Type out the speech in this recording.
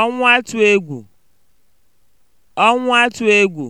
ọnwụ atụ egwu ọnwụ atụ egwu